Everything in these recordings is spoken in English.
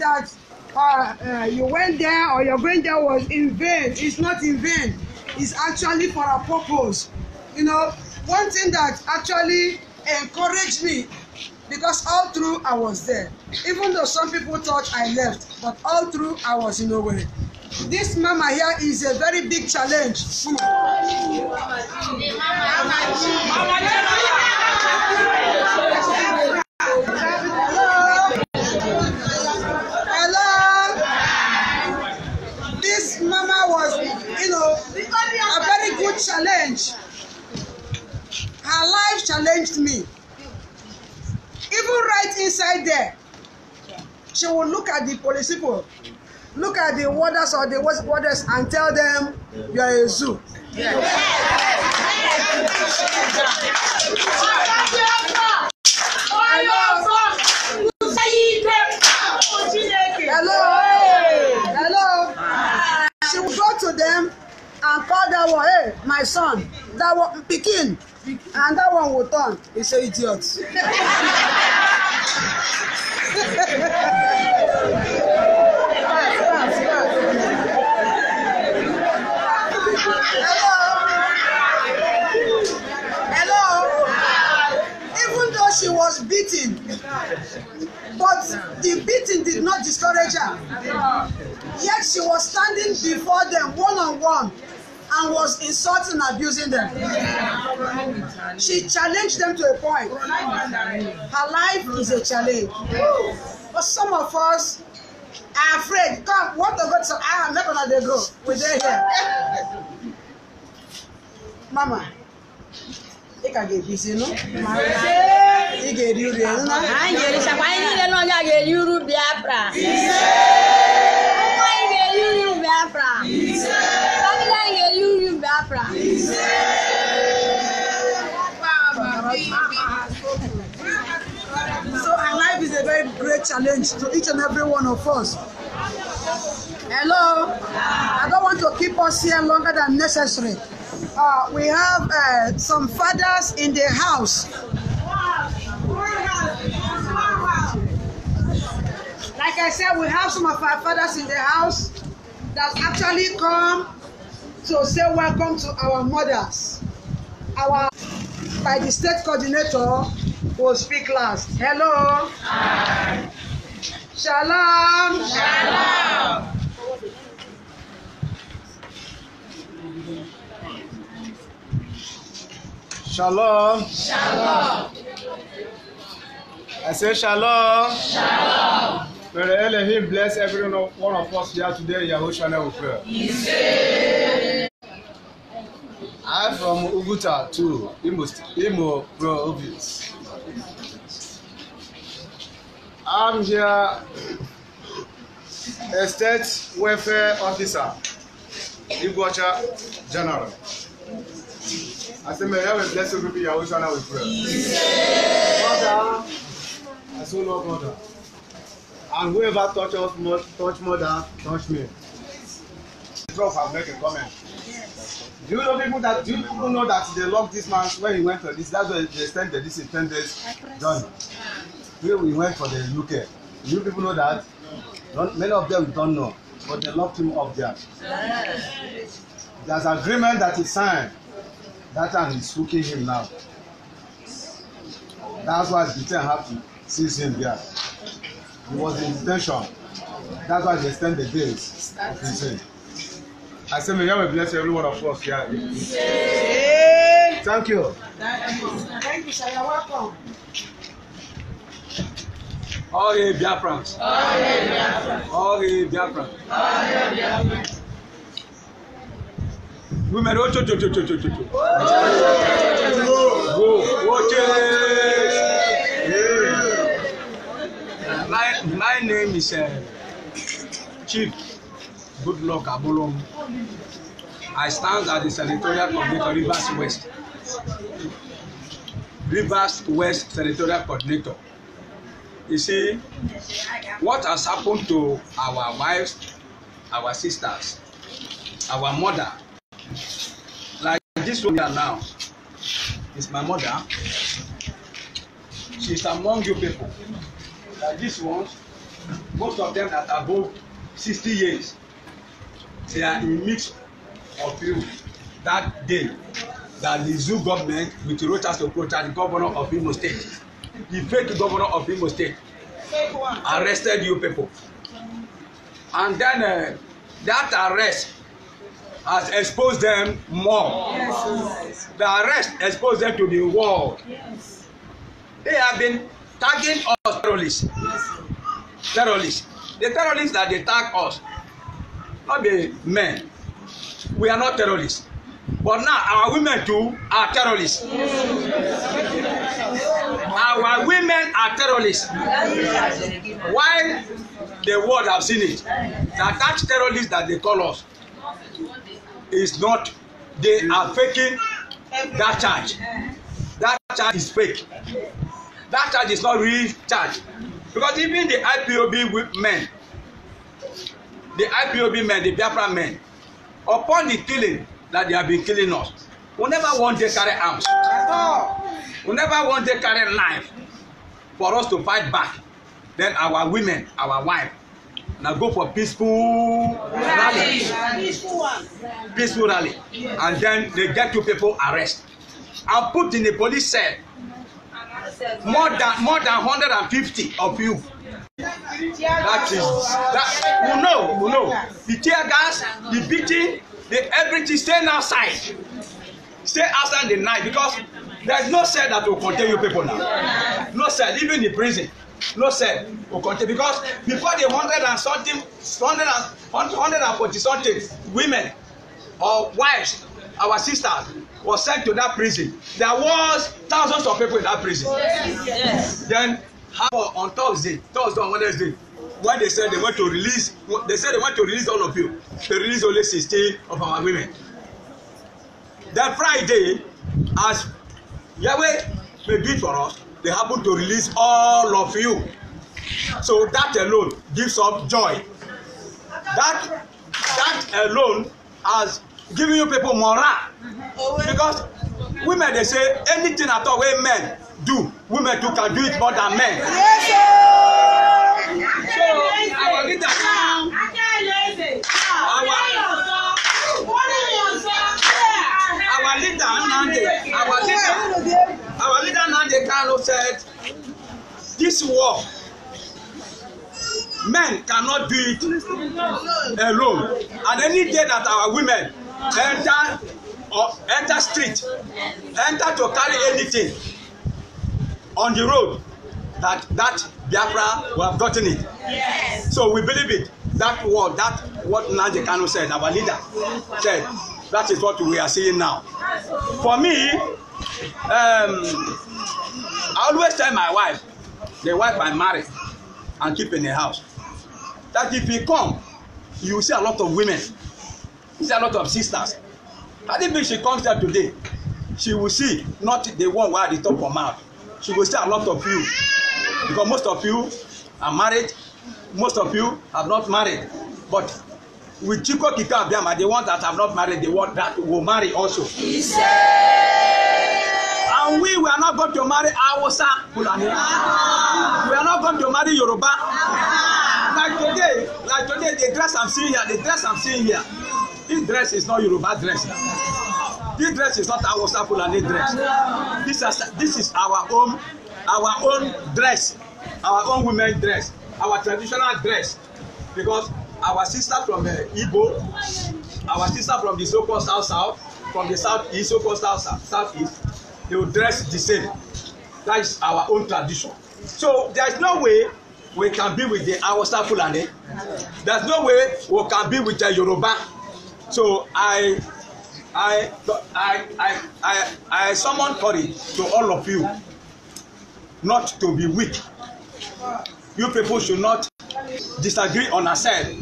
that uh, uh, you went there or your going there was in vain. It's not in vain. It's actually for a purpose. You know, one thing that actually encouraged me because all through I was there. Even though some people thought I left, but all through I was in a way. This mama here is a very big challenge. Mama, mama, mama, know, a very good challenge. Her life challenged me. Even right inside there, she will look at the police people, look at the warders or the warders and tell them, you are a zoo. Yes. Yes. Yes. Yes. Yes. Yes. Yes. Yes. all that one hey my son that one pikin and that one will turn he say idiot. she was beaten. But the beating did not discourage her. Yet she was standing before them one on one and was insulting and abusing them. She challenged them to a point. Her life is a challenge. But some of us are afraid. God, what the God said, I am not going to go. We're here. Mama, ị ka ga-ebizi nụ ị ga-eri uru ya nna anyị ga-erichakwa anyị niile na onye a ga-eri uru Biafra anyị ga-eri uru Biafra Biafra. So our life is a very great challenge to each and every one of us. Hello, I don't want to keep us here longer than necessary. Uh, we have uh, some fathers in the house. Like I said, we have some of our fathers in the house that actually come to say welcome to our mothers. Our by the state coordinator will speak last. Hello. Hi. Shalom. Shalom. Shalom. Shalom. I say shalom. Shalom. May the Elohim bless every one of us here today in Yahushua we pray. I'm from Uguta to Imo, Imo province. I'm here a state welfare officer, Iguacha General. I say, may heaven bless you, people, Yahushua we pray. Father, I so oh, love mother. And whoever touch us must touch mother, touch me. Prof have make a comment. Do you know people that do people know that they locked this man when he went for this? That's why they sent the this intended John. Where we went for the UK. Do you people know that? Don't, many of them don't know, but they locked him up there. There's agreement that he signed. That and he's hooking him now. That's why Britain have to seize him there. It was in detention. That's why they extend the days of prison. I say, may God bless every one of us here. Yeah. Thank you. Thank you, sir. All hail Biafrans. All hail Biafrans. All All hail Biafrans. Women, oh, cho, cho, cho, cho, cho, cho. Oh! is uh, Chief Goodluck Abolongo. I stand as the Senatorial Coordinator, Rivers West. Rivers West Senatorial Coordinator. You see, what has happened to our wives, our sisters, our mother, like this one here now, is my mother. She is among you people. Like this one, most of them that above sixty years they are in mix of you that day that the zoo government with to protest the governor of Imo State the fake governor of Imo State arrested you people and then uh, that arrest has exposed them more yes. the arrest exposed them to the world yes. they have been tagging us terrorists yes terrorists the terrorists that dey tag us no be men we are not terrorists but now our women too are terrorists our women are terrorists why the world have seen it na that terrorist that dey call us is not they are faking that charge that charge is fake that charge is not real charge because even the ipob men the ipob men the biafra men upon the killing that they have been killing us we never wan dey carry arms we never wan dey carry knife for us to fight back then our women our wife na go for peaceful rally peaceful rally and then they get two people arrest and put in a police cell more than more than hundred and fifty of you. That is that we know we know the tear gas the beating the everything stay outside stay outside the night because there is no cell that will contain you people now no cell even the prison no cell will contain because before the hundred and something hundred and hundred and forty something women or wives our sisters was sent to that prison there was thousands of people in that prison yes. Yes. then how on thursday thursday on wednesday when they said they want to release they said they want to release all of you they release only sixteen of our women then friday as yahweh may be for us they happen to release all of you so that alone gives us joy that that alone has giving you people morale uh-huh. because women dey say anything at all wey men do women too can do it more than men. so our leader our our leader Nnamdi our leader our leader Nnamdi Kanu said this war men cannot do it alone and any day that our women enter or enter street enter to carry anything on the road that that Biafra will have gotten it. Yes. So we believe it. That word, that what Nnamdi Kanu said, our leader said, that is what we are seeing now. For me, um, I always tell my wife, the wife I marry and keep in the house, that if you come, you will see a lot of women Is a lot of sisters? I think if she comes here today, she will see not the one wey at the top of mouth. She will see a lot of you because most of you are married, most of you have not married. But with Chiko Kika Abiyama, the ones that have not married, the one that will marry also. and we, we are not going to marry Hausa Fulani. We are not going to marry Yoruba. Like today, like today, the dress I'm seeing here, the dress I'm seeing here. This dress is not Yoruba dress. This dress is not Hausa Fulani dress. This is, this is our own our own dress, our own women dress, our traditional dress. Because our sister from uh, Igbo, our sister from the so-called South South, from the South East, so-called South South East, they will dress the same. That is our own tradition. So there is no way we can be with the Hausa Fulani. There is no way we can be with the Yoruba. So I I I I I, I summon courage to all of you not to be weak. You people should not disagree on ourselves.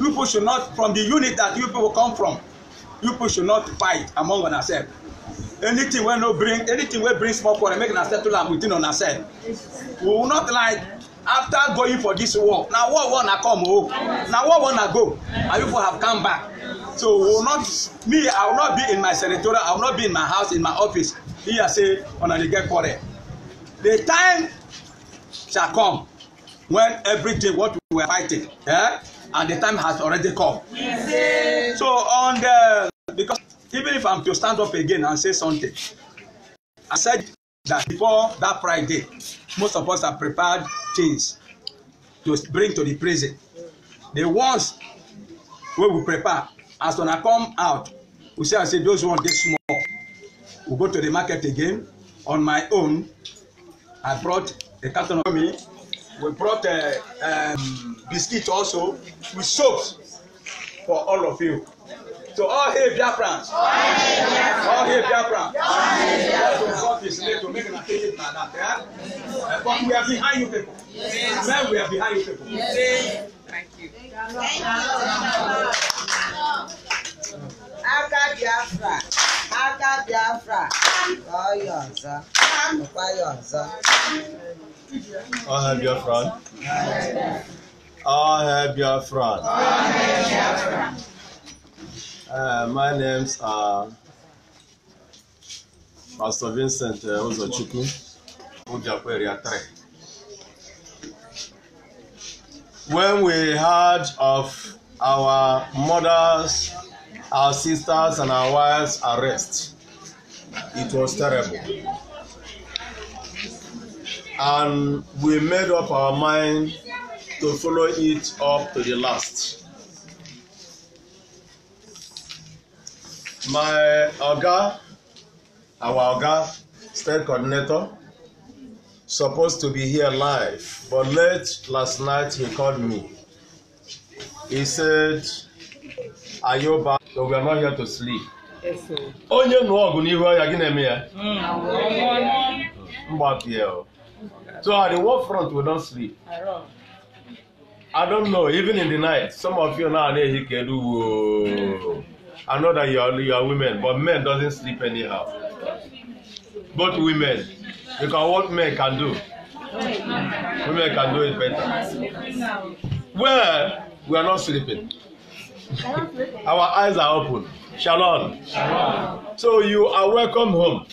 You people should not from the unit that you people come from. You people should not fight among on ourselves. Anything wey no bring anything wey bring small quarrel make una settle am within on self. We will not like after going for this war na war war na come o oh. na war war na go and people have come back so will not me i will not be in my senatorial i will not be in my house in my office here say una dey get quarrel the time shall come when everything what we were fighting eh and the time has already come yes. so on the because even if i'm to stand up again and say something i said that before that Friday, most of us have prepared things to bring to the prison. The ones wey we prepare, as una come out, we say, I say, those ones dey small. We go to the market again. On my own, I brought a carton of me. We brought a, uh, um, biscuit also with soaps for all of you. So all hail Biafrans. All hail Biafrans. That's what God is made to make an occasion like that. Yeah? Uh, but we are behind you people. Yes. we are behind you people. Thank you. Thank you. Aka Biafra, Aka Biafra, ọ ya ọzọ, nụkwa ya ọzọ. Ọha Biafra. Ọha Biafra. Ọha Biafra. Uh, my names are Pastor Vincent uh, Ozochukwu. Ujakwe area 3. When we heard of our mothers, our sisters, and our wives' arrest, it was terrible. And we made up our mind to follow it up to the last. my oga our oga state coordinator supposed to be here live but late last night he called me he said "Are you back?" so we are not here to sleep onye nụọ ọgụ n'ihu ọya gị na-eme ya hmm. mgbapie o so at the war front we don't sleep i don't know even in the night some of you now na-ehi kedu woo I know that you are, you are women, but men doesn't sleep anyhow. Both women, because what men can do, women can do it better. Well, we are not sleeping. Our eyes are open. Shalom. So you are welcome home.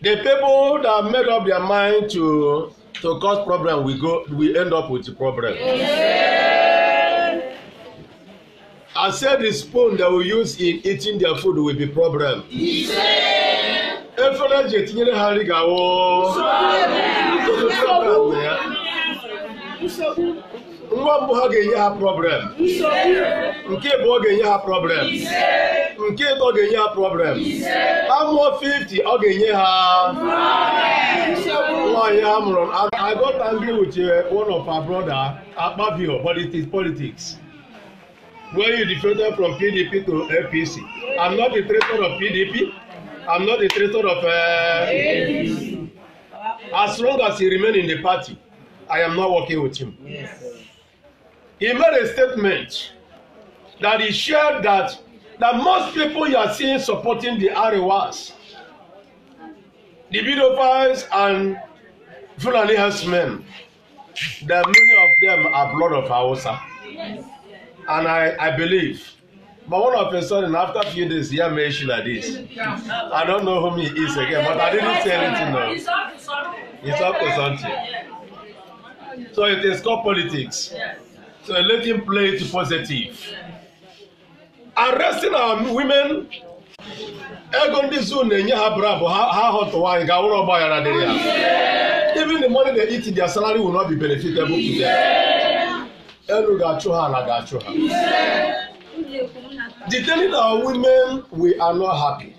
The people that made up their mind to to cause problem, we go, we end up with the problem. Yeah. I said the spoon that we use in eating their food will be problem. efere eji etinyere ha nri ga-awụ nwa mbụ ha ga-enye ha problem nke abụọ ga-enye ha problem nke ịtọ ga-enye ha problem amụọ 50 ọ ga-enye ha nwaanyị a mụrụ I got angry with uh, one of our brother Akpabio but it is politics when you defected from PDP to APC. I'm not a traitor of PDP. I'm not a traitor of uh, As long as he remain in the party, I am not working with him. Yes. He made a statement that he shared that that most people you are seeing supporting the Arewas, the Bidophiles and Fulani herdsmen, that many of them are blood of Hausa. Yes and I, I believe. But one of a sudden, after a few days, he had mentioned like this. I don't know whom he is again, but I didn't say anything now. It's up to something. So it is called politics. So let him play it positive. Arresting our women ego ndị zoo na-enye ha brabụ ha họtụwa anyị ga awụrụ ọgba aghara dịrị even the money they eat in their salary will not be benefited to them. Elu ga-achụ ha ala ga-achụ ha. The telling our women we are not happy,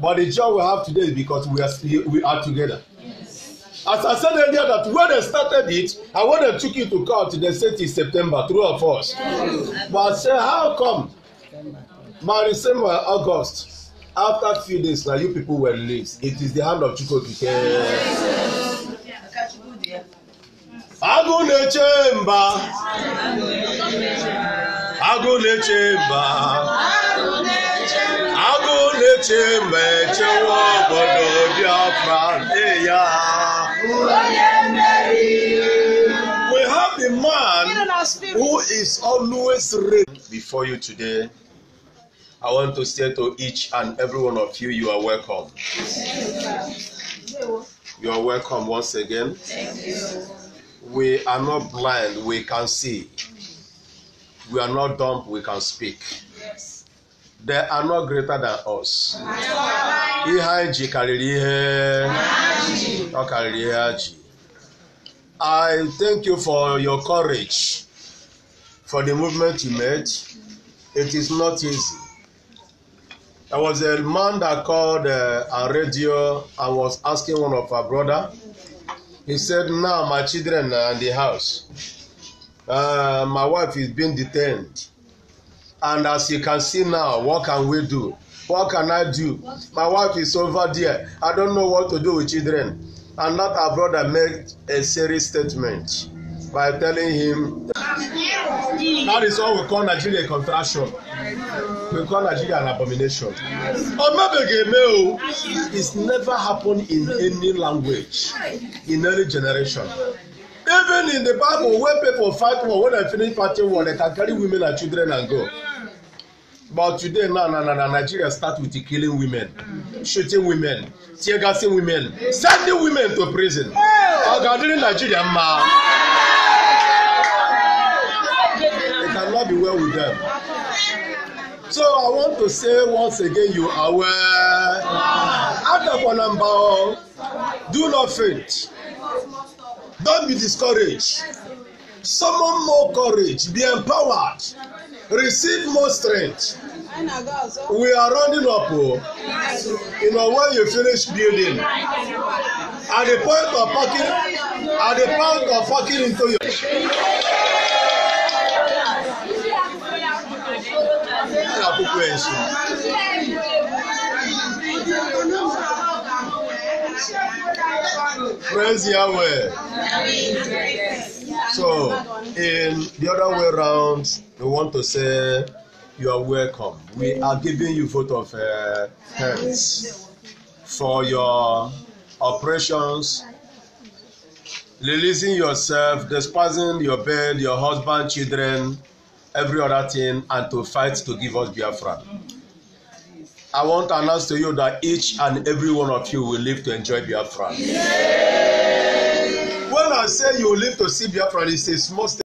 but the joy we have today is because we are we are together. As I said earlier, that when they started it and when they took it to court, they said it's September, through of us. But I say, how come? My December, August, after few days now, you people were released. It is the hand of Chukwu Yes agụ na-eche mba agụ na-eche mba agụ na-eche mba echewa obodo biafra ya we have a man who is always ready before you today I want to say to each and every one of you, you are welcome. You are welcome once again. Thank you we are not blind, we can see. We are not dumb, we can speak. Yes. They are not greater than us. Ihe anyị ji karịrị ihe ọ karịrị ihe ji. I thank you for your courage, for the movement you made. It is not easy. There was a man that called uh, a radio and was asking one of our brother. He said, Now my children are in the house. Uh, my wife is being detained. And as you can see now, what can we do? What can I do? My wife is over there. I don't know what to do with children. And that our brother made a serious statement by telling him that is all we call Nigeria a contraction we call nigeria an abomination omebegeme o it's never happened in any language in any generation even in the bible when people fight war when dem finish party war dem can carry women and children and go but today now na na na nigeria start with killing women shooting women tear gassing women sending women to prison oga during nigeria ma it cannot be well with them. So I want to say once again, you are well. after number one, do not faint. Don't be discouraged. Summon more courage. Be empowered. Receive more strength. We are rounding up. Oh. You know, when you finish building, at the point of fucking, at the point of fucking into your. gbogbo ẹ̀sùn. Praise Yahweh. So, in the other way round, we want to say you are welcome. We are giving you vote of uh, hands for your operations, releasing yourself, despising your bed, your husband, children, every other thing and to fight to give us Biafra. I want to announce to you that each and every one of you will live to enjoy Biafra. Yeah. When I say you live to see Biafra, it's a small step.